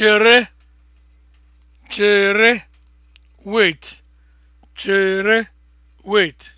chere chere wait chere wait